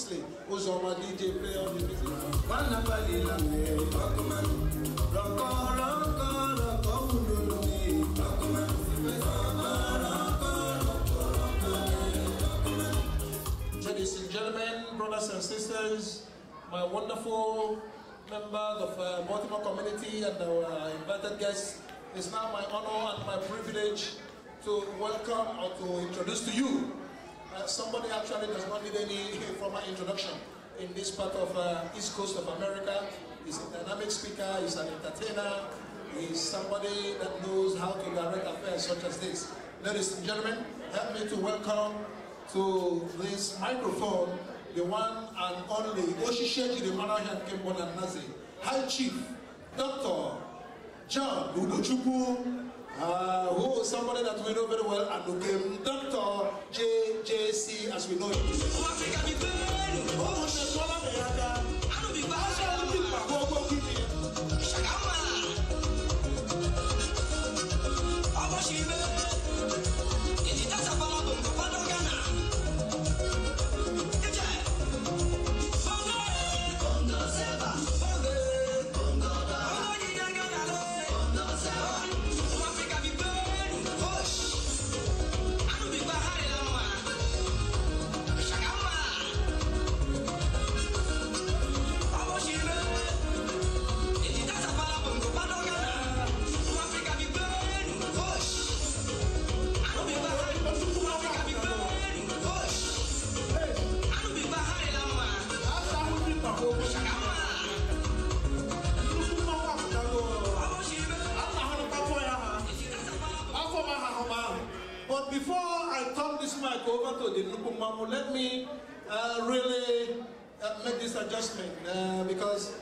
Kingsley who's on my DJ Ladies and gentlemen, brothers and sisters, my wonderful members of uh, Baltimore community and our invited guests, it's now my honor and my privilege to welcome or to introduce to you uh, somebody actually does not need any formal introduction in this part of uh, East Coast of America. He's a dynamic speaker, he's an entertainer, he's somebody that knows how to direct affairs such as this. Ladies and gentlemen, help me to welcome to this microphone the one and only Oshisheji the Manahan Kimbon Nazi, High Chief, Dr. John Udochukwu uh, who somebody that we know very well and became Dr. J.J.C. as we know him. adjustment uh, because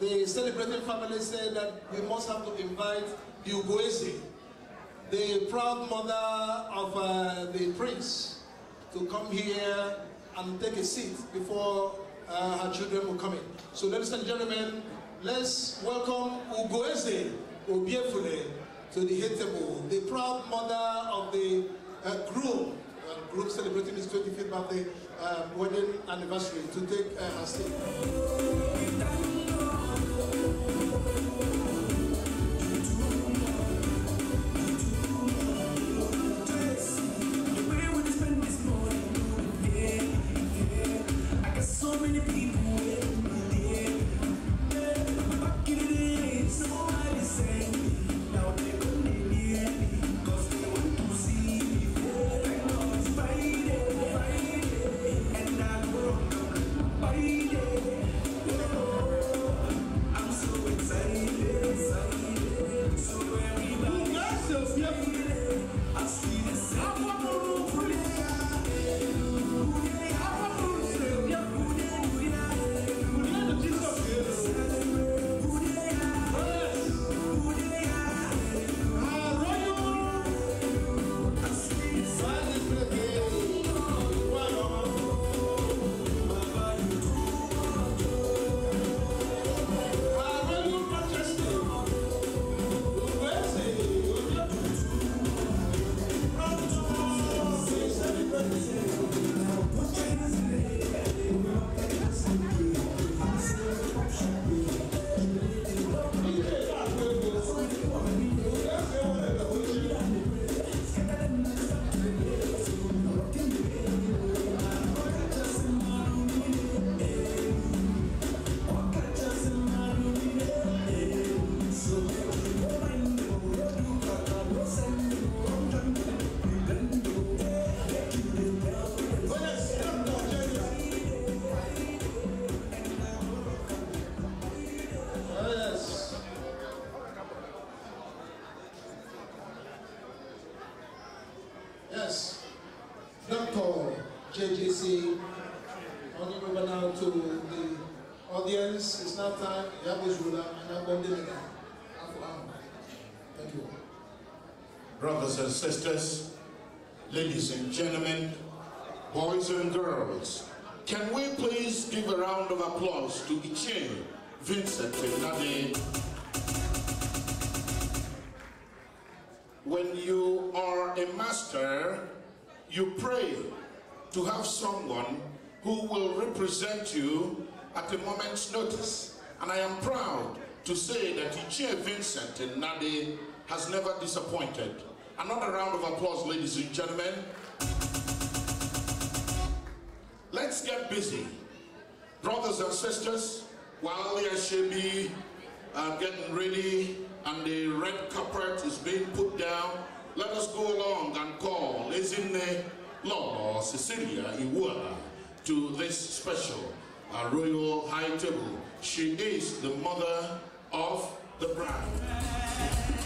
the celebrating family said that we must have to invite Ugoese, the proud mother of uh, the prince, to come here and take a seat before uh, her children will come in. So ladies and gentlemen, let's welcome Ugoese Obiefule to the head table, the proud mother of the uh, groom group celebrating his 25th birthday uh, wedding anniversary to take a uh, seat. sisters, ladies and gentlemen, boys and girls, can we please give a round of applause to Ichin Vincent Nade? When you are a master, you pray to have someone who will represent you at a moment's notice. And I am proud to say that Ichie Vincent Nade has never disappointed. Another round of applause, ladies and gentlemen. Let's get busy. Brothers and sisters, while Yashebi are getting ready and the red carpet is being put down, let us go along and call Isinne Lord Cecilia Iwua to this special uh, royal high table. She is the mother of the bride.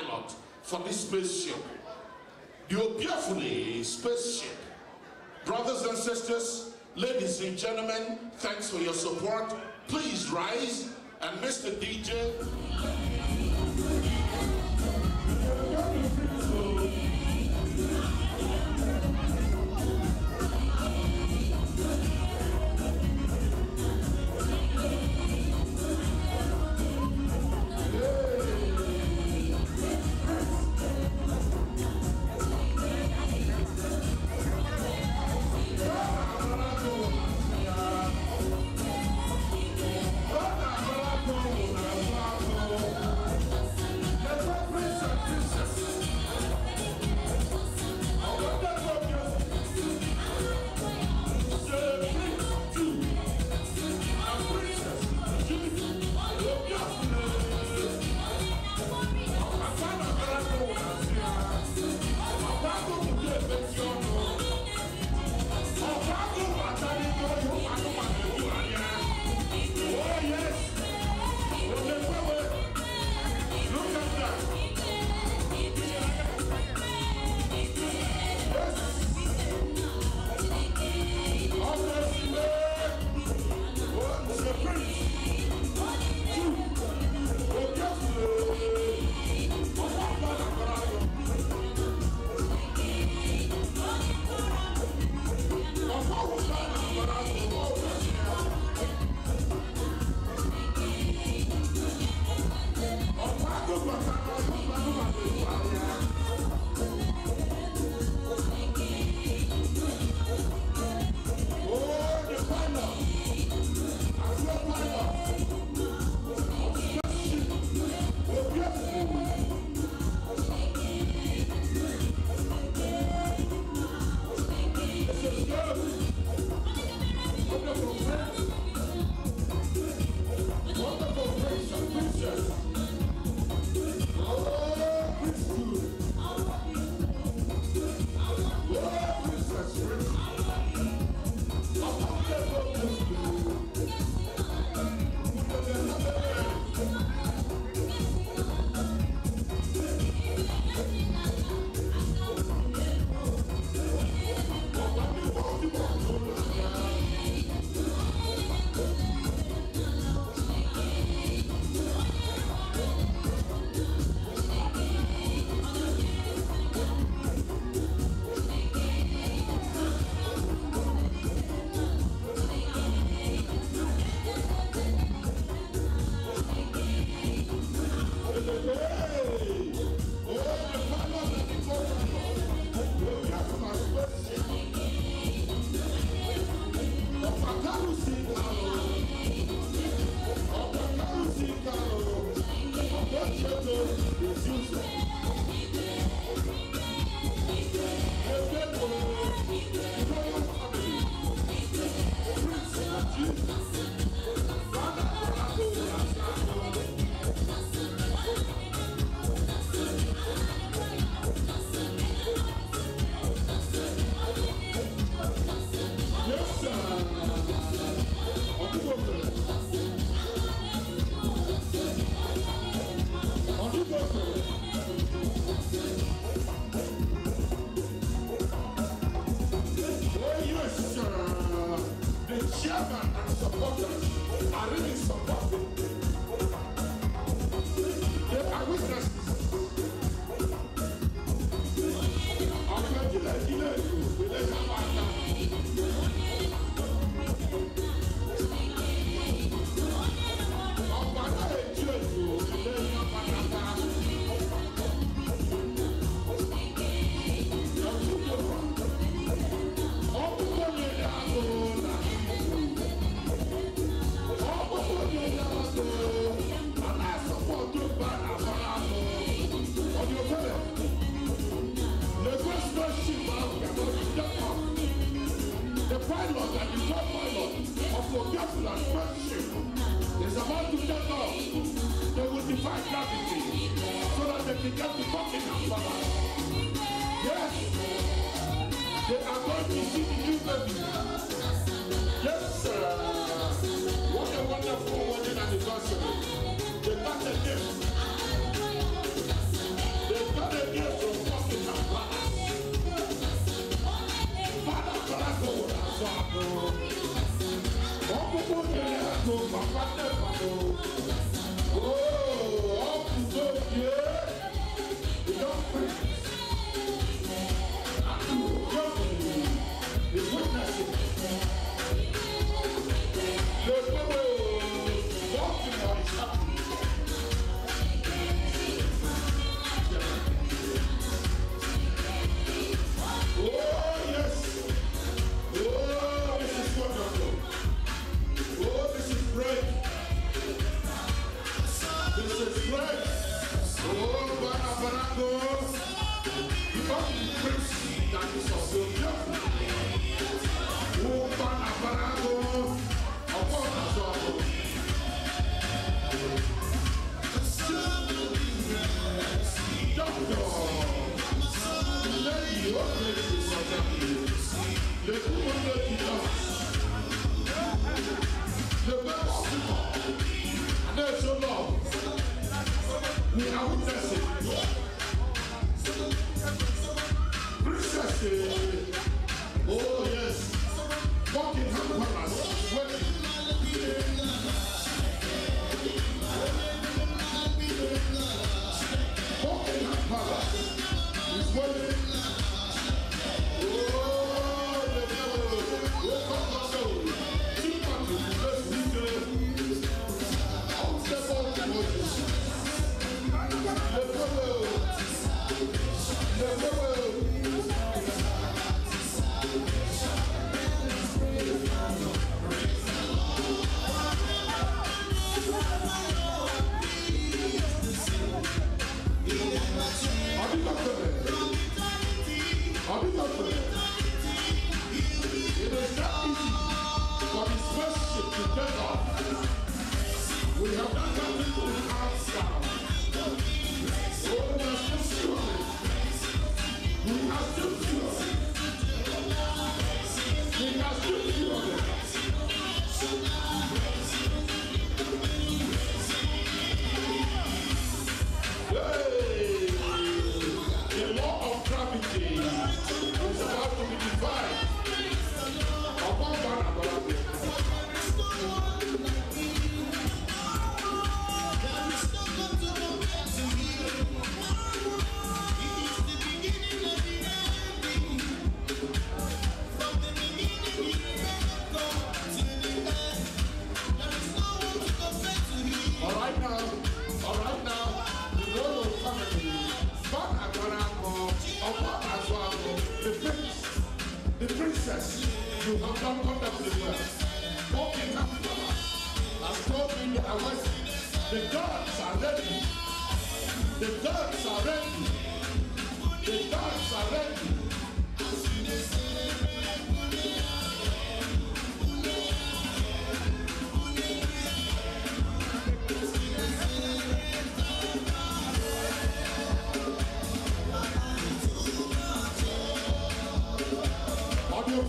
pilot for this spaceship. Your beautifully spaceship. Brothers and sisters, ladies and gentlemen, thanks for your support. Please rise and Mr. DJ. friendship. It's about to take off. They will define gravity so that they can get to fucking Yes. They are going to see the new baby. Yes, sir. What a wonderful wedding anniversary. They got a gift. They got a gift from fucking Kampala. Father, Father, Father, Father. Oh, oh, to Oh, oh, oh, not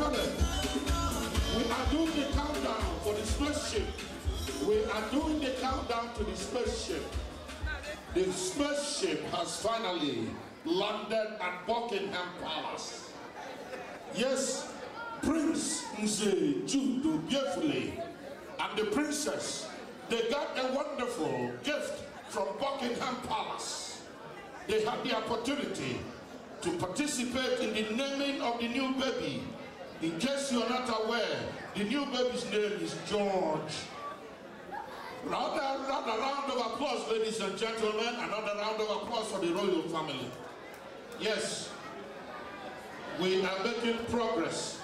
we are doing the countdown for the spaceship. We are doing the countdown to the spaceship. The spaceship has finally landed at Buckingham Palace. Yes, Prince Nze Judo beautifully and the princess, they got a wonderful gift from Buckingham Palace. They had the opportunity to participate in the naming of the new baby in case you are not aware, the new baby's name is George. Round, round, round of applause, ladies and gentlemen. Another round of applause for the royal family. Yes, we are making progress.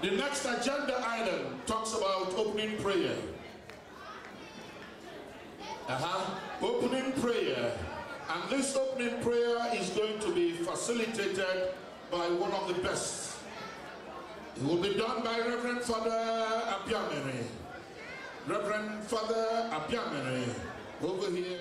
The next agenda item talks about opening prayer. Uh-huh. Opening prayer. And this opening prayer is going to be facilitated by one of the best. It will be done by Reverend Father Abiamere. Reverend Father Abiamere, over here.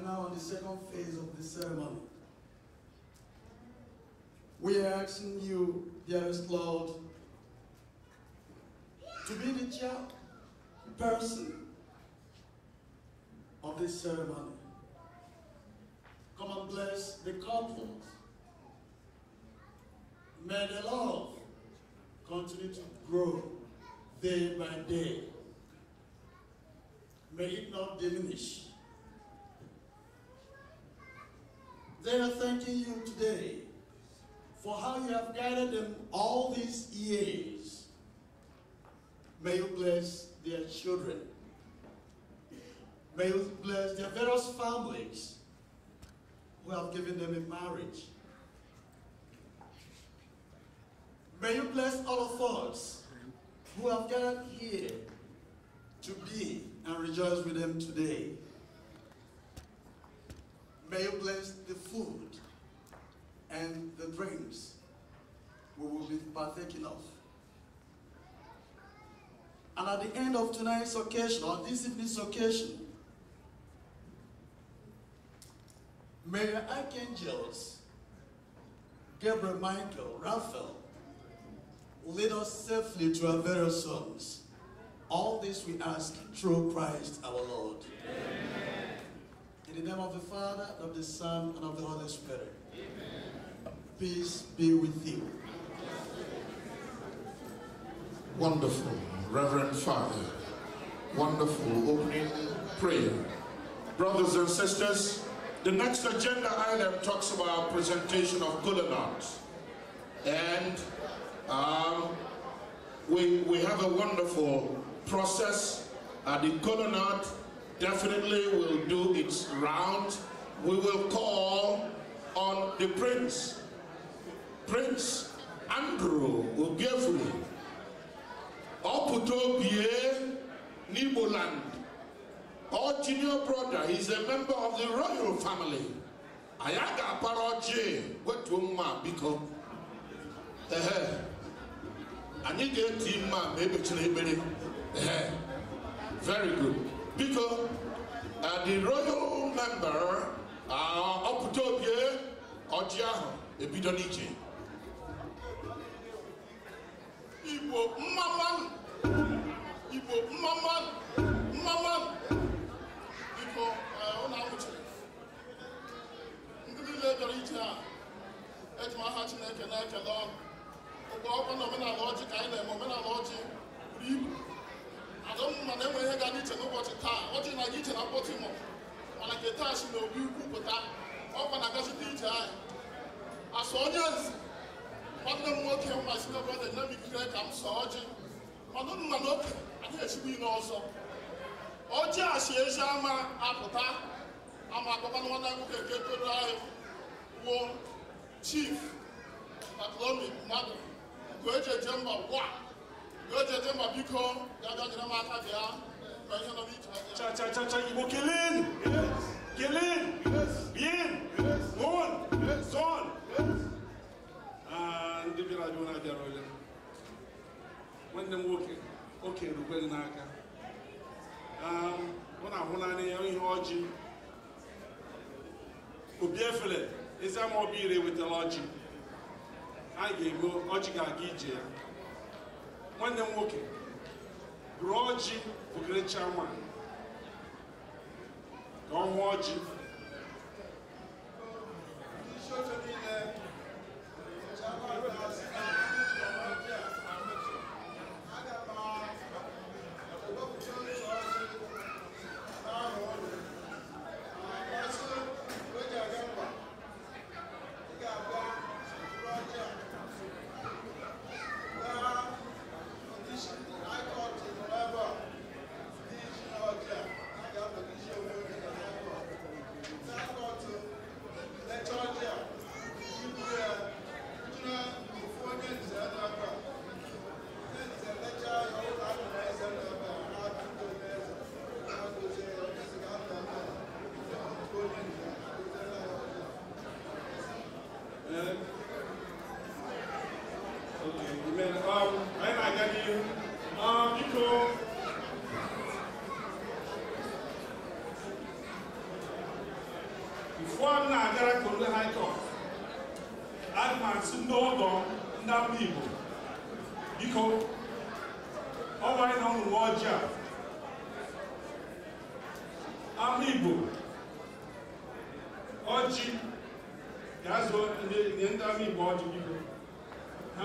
are now on the second phase of the ceremony. We are asking you, dearest Lord, to be the chairperson person of this ceremony. Come and bless the couples. May the love continue to grow day by day. May it not diminish. They are thanking you today for how you have guided them all these years. May you bless their children. May you bless their various families who have given them in marriage. May you bless all of us who have gathered here to be and rejoice with them today. May you bless the food and the drinks we will be partaking of. And at the end of tonight's occasion, or this evening's occasion, may archangels Gabriel, Michael, Raphael, lead us safely to our various homes. All this we ask through Christ our Lord. Amen. In the name of the Father, and of the Son, and of the Holy Spirit. Amen. Peace be with you. Wonderful, Reverend Father. Wonderful opening prayer. Brothers and sisters, the next agenda item talks about presentation of Gulenot. And um, we, we have a wonderful process. Uh, the Gulenot definitely will do its round. We will call on the Prince, Prince Andrew Ogefuli, Oputobie Niboland, our junior brother. He's a member of the royal family. Ayaga Paroche, what to ma biko? Eh, I need a team ma, maybe to Very good. biko the royal member ọpụta obie ọjị ahụ ebido n'iche igbo mmama igbo mmama mmama biko ụlọ e, amụchiri ndị niile dọrọ ije a eji m aha chineke na-ekele ọgụ ụgbọ ọkwa na omenala ọjị ka anyị na-eme omenala ọjị buru ibu adọmma na enweghị na Baltimore mana nke taa si n'obi ukwu pụta ọkwa na gasịta ije anyị asọ onye nzi nwanne m nwoke mmasị n'obodo nyemikire ka m sọ ọjị mana ụnụ mana oke anyị esigbo ile ọzọ ọjị a ezi ama apụta ama akpọkwanụ nwanne nwoke nke toro anyị wuo chief Paclomi mmadụ nke eji eje mba ugbu a nke eji eje mba biko ga-abịa nyere m aka bịa Cha, cha, cha, cha, ndị oke n'aka. na-ahụ ya ihe Obi efere, ezi ama ire ga-ego, ọjị ga-aga ije ya. Nwanne m nwoke, rọọ ji bụgịrịcha nwa ka ọ nwụọ ji ndị isi oche niile ụfọdụ na-agara Kololo High Court atụmatụ ndị ọgọ ndị ama Igbo biko ọ gwara na ụmụ uwe ojii a ama Igbo ọjị ga-azụ ndị ama Igbo ọjị biko ha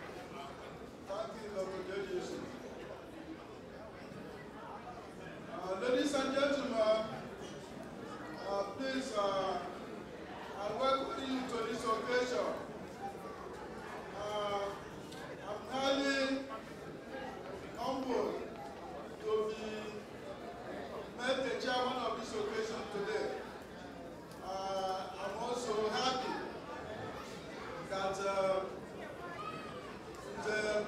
ladies and gentlemen, uh, please, uh, I welcome you to this occasion. Uh, I'm highly humbled to be made the chairman of this occasion today. Uh, I'm also happy that uh, the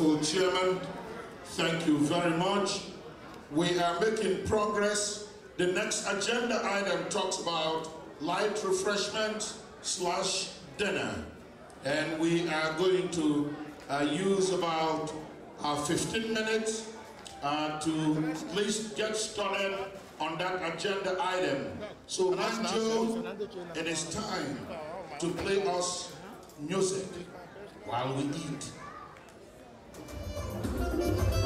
wonderful chairman. Thank you very much. We are making progress. The next agenda item talks about light refreshment slash dinner. And we are going to uh, use about uh, 15 minutes uh, to at least get started on that agenda item. So Manjo, it is time to play us music while we eat. Thank you.